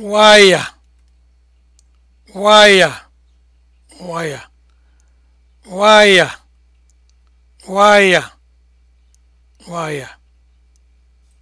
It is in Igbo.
waya waya waya waya waya waya